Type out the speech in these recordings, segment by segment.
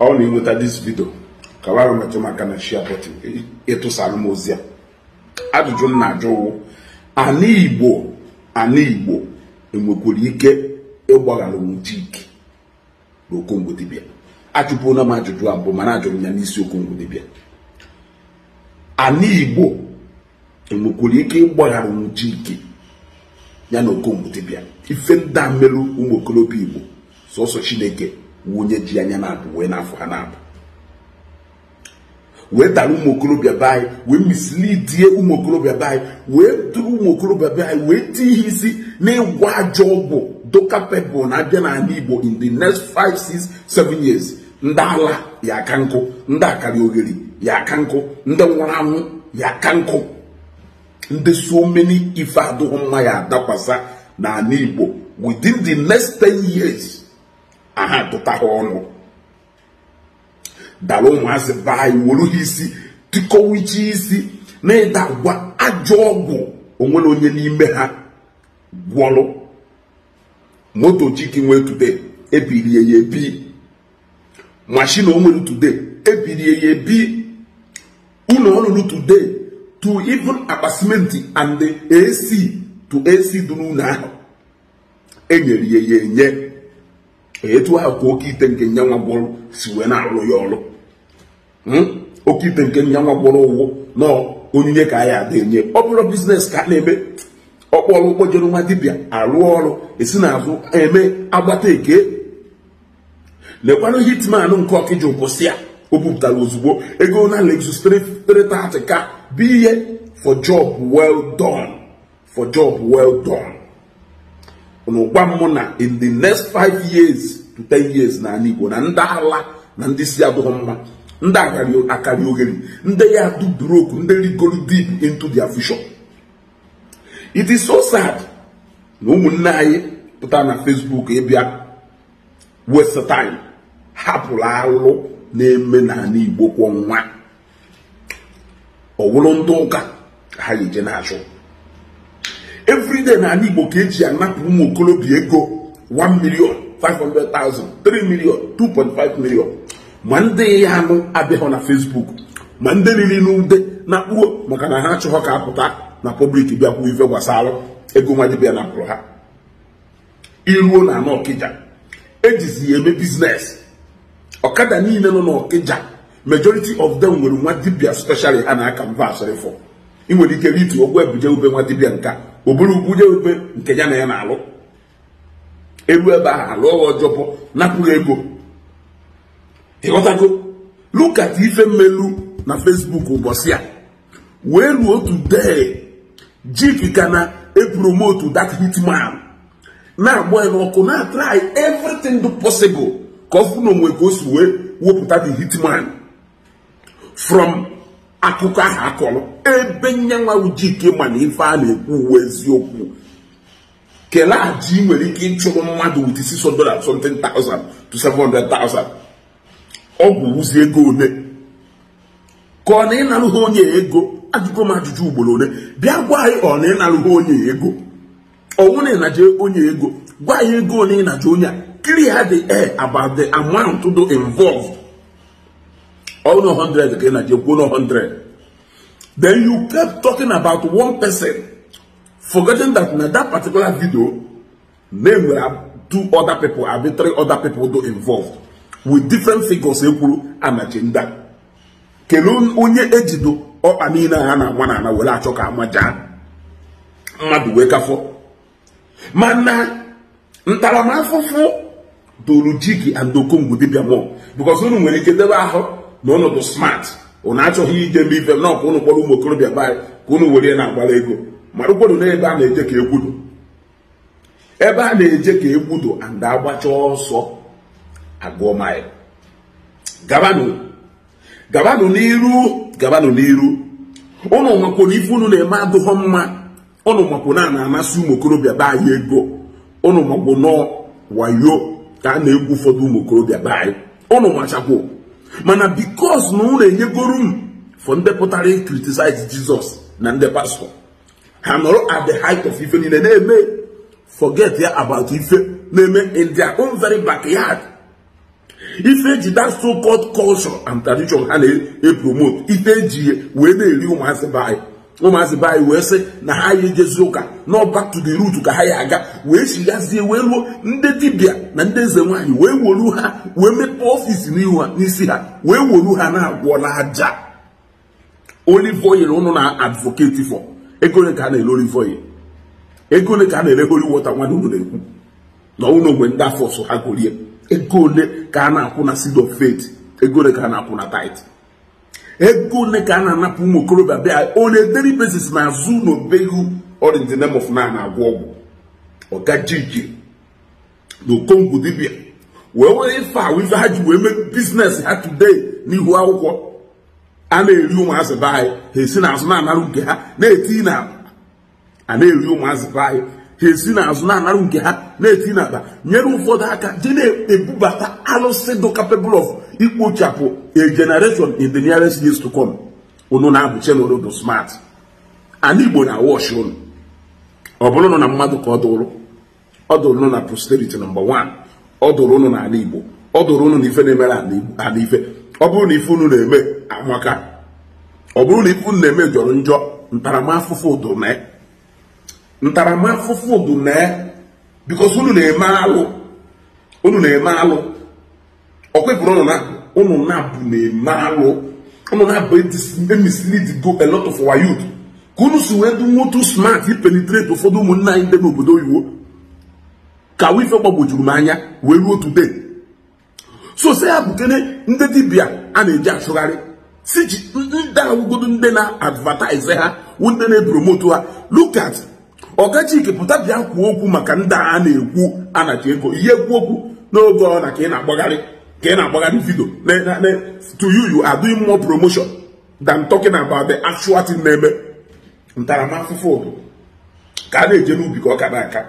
ọ na enweta dis vidio ka wara metụ maka na shia bọtịn ịtụsara e, e m ozi ya ajụjụ m na-ajụ ụwụ ana igbo ana igbo enwekwara ike ịgbaghara nwuchike na okongwodibia ajụpụla m ajụjụ abụọ mana ajụrụ m ya n'isi okongwodibia ana igbo enwekwara ike ịgbaghara nwuchike ya na okongwodibia ife ndị a merụ ụmụ okorobịa igbo sọsọ chineke wunye ji anya na-apụ wee na-afụ ha na-apụ wee dara ụmụ okorobịa be anyị wee misilidie ụmụ okorobịa be anyị wee duru ụmụ okorobịa be anyị wee tie ihe isi n'ịgwa ajọ ọgwụ dokapebụl na-abịa n'ala Igbo in the next 5 6 7 years ndị ala ya aka nkụ ndị akara ogheri ya aka nkụ ndị nwụrụ anwụ ya aka nkụ ndị so many ife adịghị mma ya adakwasa n'ala Igbo within the next 10 years aha tụta ha ọnụ dara ụmụazị be anyị ha isi tịkọwa isi na ịda agwa ajọ ọgwụ onwe na onye n'ime ha gwọrụ moto chiki nwee today e ebirie ya ebi mashin onwere today e ebirie ya ebi ụlọ ọrụrụ today to even akpa simenti and ac to ac dụrụ ụlọ ahụ enyere ya ya enye etu ahụ ka oke ite nke nyanwa si wee na-arụ ya ọrụ hmm? oke ite nke nyanwa gbọrọ ụgwọ na onyinye ka anyị ya ada enye ọ bụrụ biznes ka a na-eme ọkpọrọ kpojere nwa dibịa arụ ọrụ esi n'azụ eme agbata eke lekwanụ hitman nke ọkịji ụkwụsị ya o bupụtara ozugbo ego na Lexus ka bụ ihe for job well done for job well done n'ụkwa mmụ na in the next five years to ten years na ala igbo na ndị ala na ndị si adụghị mma ndị akarị oghere ndị ya do broke ndị rigoro deep into their vision it is so sad na ụmụnne anyị pụta na facebook ịbịa waste time hapụrụ alụ na-eme n'ala igbo kwa ọnwa. ọ wụrụ ndị ụka ha ga-eje na-achụ every na anyị Igbo ka eji anapụ ụmụ okorobịa ego 1 million 500,000 3 million 2.5 million ma ndị ya anụ abịaghị na Facebook ma ndị riri n'ude na akpụgo maka na ha achọghọ ka apụta na pọblik bịakwu ife gbasara ego bịa na napụrụ ha iruo na anọ Ọkịja ejizi ya eme biznes ọkada niile nọ n'Ọkịja majority of them nwere nwa dibia specially a na-aka mba asịrịfọ ị nwere ike itu ogwu ebuje ube nwa dibia nka oburu bụrụ ugwuje ube nke ya na ya na-alụ elu ebe ahụ alụ ọghọ ọjọpụ napụghị ego ịghọtago lukat ife mmelu na fesbuk ụbọchị a wee ruo otu dee jik ka na epromotu dat hitman na-agba ya n'ọkụ na try everything posibụl ka ọ fụ na onwe ka o si wee wepụta the hitman from akụkọ ahụ akọrọ ebe nyanwa ujike ma na ife a na-ekwu uwe eziokwu kelee aji nwere ike ịchụrụ mmadụ with 600 something thousand to 700,000 ọgwụ ụzi ego ole ka ọ na ịnarụghị onye ego ajụgo m ajụjụ ugboro ole bịa gwa anyị ọ na ịnarụghị onye ego ọnwụ na ịnaje onye ego gwa anyị ego ole ịnaje onye a clear the air about the amount do involved all no 100 again and you go 100 then you kept talking about one person forgetting that in that particular video name were two other people and three other people do involved with different figures ekwuru and agenda kelu onye ejido ọkpa niile ha na-agba n'ala were achọ ka amaja mmadụ wee kafọ mana ntaramahụhụ dolu ji gị and okongwu dibịa mmụọ bikọs unu nwere ike debe ahụ na unu bụ smart unu achọghị idebe ibe m na ọkwa unu kpọrọ ụmụ okorobịa baanyị ka unu were na-agbara ego mara ụkwado na ebe a na-eje ka egwudo ebe a na-eje ka egwudo and agbacha ọsọ agụọ maịl gabanụ gabanụ n'iru gabanụ n'iru ụnụ makwụ ife unu na-eme adụghọ mma ụnụ makwụ na amasị ụmụ okorobịa be anyị ego ụnụ makwụ nọ wayo ka a na-egwu ụfọdụ ụmụ okorobịa be anyị ụnụ nwachakwụ. mana bikos na unu enyegoro m for ndị pụtara ikritisaịz jizọs na ndị pastọ ha nọrọ at the height of ife niile na-eme forget ya about ife na-eme in their own very backyard ife eji that so called culture and tradition ha na-epromote e ife eji e, wee na-eri ụmụazị be ụmụazị be wee sị na ha ya ejezi ụka na back to ka ha ya aga wee chighazie wee ruo ndị dibịa na ndị eze nwaanyị wee wolu ha wee mepee ọfisi n'isi ha wee wolu ha na-agwọ n'aja olive ụnụ na advocate for ego ole ka a na-ere olive oil ego ka a na-ere oli water nwa unu na-ekwu na ụlọ ogwe ndị afọ so ha golie ego ole ka a na-akwụ na seed of faith ego ole ka a na-akwụ na tithe ego one ka a na-anapụ ụmụ okorobịa bịa onye deri daily na-azụ n'obegu or in of na na-agwọ ọgwụ ọgajiji na okongwu dibịa wee were ife a ha ji wee mee biznes ha today n'ihu akwụkwọ a na-eri ụmụazị be anyị ha esi na azụ na-anara nke ha na-eti na a na-eri ụmụazị be ha esi n'azụ na-anarụ nke ha na-eti n'akpa nyere ụfọdụ aka dị na-ebubata alụsị dị capable of ikpochapụ a generation in the nearest years to come unu na-abụ chenrodo smart ana igbo na wash unu ọ bụrụ nụ na mmadụ ka ọ dụrụ ọ dụrụ nụ na posterity nọmba 1 ọ dụrụ na n'ala igbo ọ dụrụ unu na ife na-emere ala ife ọ bụrụ na ife unu na-eme amaka ọ bụrụ na ife unu na-eme jọrọ njọ ntaramahụhụ dụrụ na ya ntaramahụhụ bụ mee bikos unu na-eme alụ unu na-eme alụ ọkwepụrụ unu na unu na-abụ na-eme alụ unu na-abụ emislid go a lot of our youth ka unu si wee dị nwotu smart ipenitrate ụfọdụ ụmụnna anyị dị n'obodo oyibo ka wife gbagwojuru m anya wee ruo today so se ya bukene ndị dibịa a na-eji achụgharị si ji ndị awụgodo ndị na-advertise ha ndị na-epromote ha look at ọkachike pụta bịa kwuo okwu maka ndị a na-ekwu anaji ego ihe ekwu okwu n'oge ọ na ka ị na-agbagharị ka ị na-agbagharị vidio to you you are doing more promotion than talking about the actual thing na-eme ntaramahụhụ obodo ka a na-eje n'ubi ka ọ ka na-aka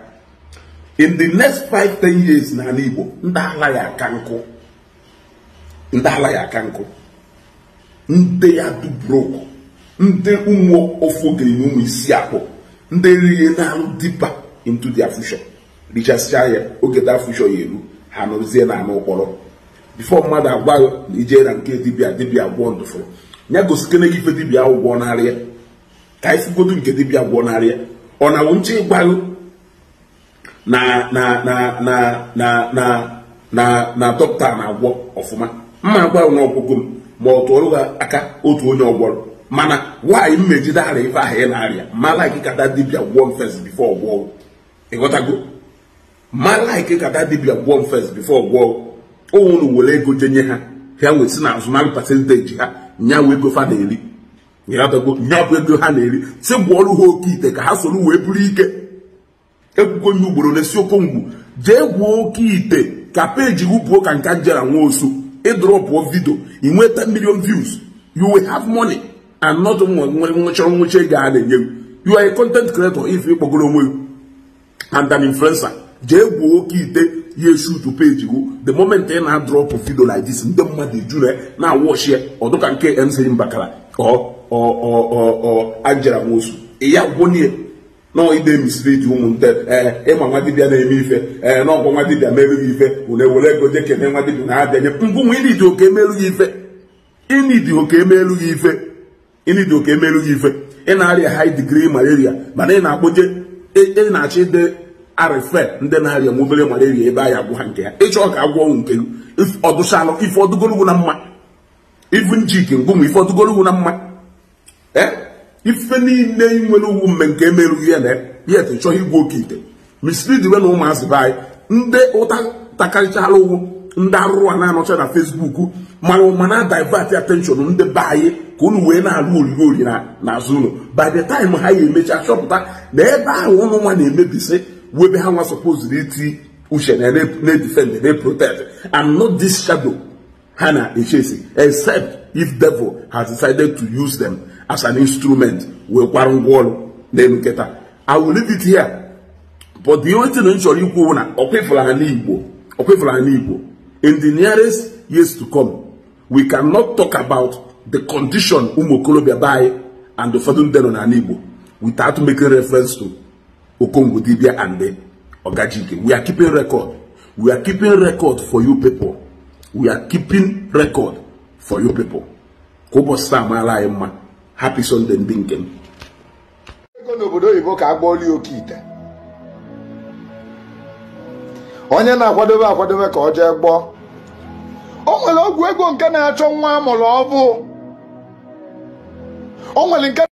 in the next five ten years n'ala Igbo ndị ala ya aka nkụ ndị ala ya aka nkụ ndị ya dubrok ndị ụmụ ofu ogiri na ụmụ isi akpụ ndị riri na dipa into their future richasịa ya oge da future ya eru ha nọzie na anụ ụkpọrọ bifo mmadụ agwa ije na nke dibia dibia gwọ ndụfụrụ ya gosikene gị ife dibia ahụ gwọ narịa ka anyị nke dibia gwọ narịa ọ na nche ịgbago na na na na na na na dọkịta na-agwọ ọfụma mma agwa na ọgwụgwọ m ma ọ tụọrụ ha aka otu onye ọgwọrọ mana nwaanyị m mejide ara ife ahụ ị na-arịa mala gị kata dibia gwọọ m bifo before gwọọ ịghọtago mala gị kata dibia gwọọ m first before gwọọ were ego jenye ha ha wee si na azụmaahịa pasenteji ha nya wee ego fa na-eri ịghọtago bụ ego ha na-eri si gwọọrụ ha oke ite ka ha soro wee bụrụ ike egwugo nye ugboro n'esi okongwu jee gwuo oke ite ka peji wụpụo ka nka njera nwa osu ịdrọpụọ e vidio ị e nweta million views you will have money and not nwere nwụchọrọ nwụchi ego a na-enye you are a content creator if ịkpọgoro onwe gị and an influencer jee gwuo oke ite ya shutu peji gụ the moment ị na-adrọpụ video like this ndị mmadụ ejuru na-awọchi ya ọ dịka nke MC Mbakara Angela Nwosu ya gwonye nọọ ide misiri ji ụmụnne ịma nwa dibịa na-eme ife ee n'ọgwọ nwa dibịa merughị ife were were ego jee kene nwa dibịa na-abịanye mbụ nwa ịnidi oke emerughị ife ịnidi oke emerughị ife ịnị ịnịdị oke emerụ gị ife ị na-arịa high digrii malaria mana ị na-akpoje ị na achị ide arịfe ndị na-arịa nwa obere malaria ebe anyị agwụ ha nke ya ịchọọ ka agwọ ọnwụ nke gị ọdụchalụ ife ọdụgorogwu na mma ife njik ngwụmụ ife ọdụgorogwu na mma ee ife niile nwere ugwu mme nke emerụghị ya na ya chọghị igwe oke ite misiri diwe na ụmụazị be anyị ndị ụta takarịchaala ụgwụ ndị arụrụ a na-anọcha na fesbuk ma na divert attention ndị be anyị ka unu wee na-alụ oriri ori azụ ụlọ by the time ha ya emecha chọpụta na ebe ahụ ụlọ nwa na-emebisi webe ha nwa supoziri iti uche na na-edifend na-protect and not this shadow ha na-echesi except if devil has decided to use them as an instrument wee kwara ngwa ọrụ n'elu nkịta i will leave it here but the only thing chọrọ ikwu na ọkwefụla ha n'igbo ọkwefụla ha n'igbo in the nearest years to come, we cannot talk about the condition Umukolobia by and the Fadun Denon and Igbo without making reference to Okongo Dibia and the Ogajike. We are keeping record. We are keeping record for you people. We are keeping record for you people. Kobo Samala Emma. Happy Sunday, Dinkem. Ego n'obodo oyibo ka agbọọla oke ite onye na-akwadobe akwadobe ka ọ jee gbọọ o nwere ọgwụ ego nke na-achọ nwa amụrụ ọbụ o nwere nke